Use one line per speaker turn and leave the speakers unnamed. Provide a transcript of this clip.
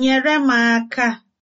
nyere m aka